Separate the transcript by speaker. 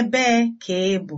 Speaker 1: Ebee ka ị bụ?